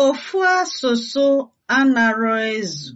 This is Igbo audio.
Ofu asụsụ anarọ ezu